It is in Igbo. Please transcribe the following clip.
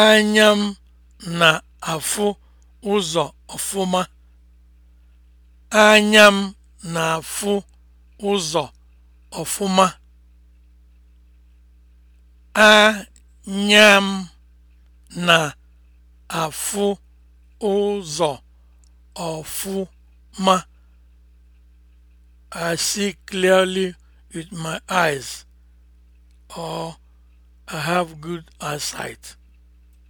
Anya m na-afụ ụzọ ọfụma. Anya m na-afụ ụzọ ọfụma. Anya m na-afụ ụzọ ọfụma. I see clearly with my eyes or I have good eyesight.